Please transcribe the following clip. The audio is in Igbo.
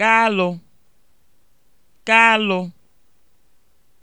Kalụ, kalụ